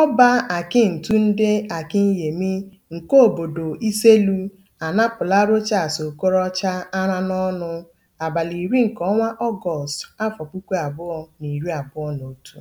Ọba ndị akinyemi nke obodo Iselu anapụla Rochas Okorocha ara n'ọnụ abalị iri nke ọnwa Ọgọst, afọ puku abụọ na iri abụọ na otu.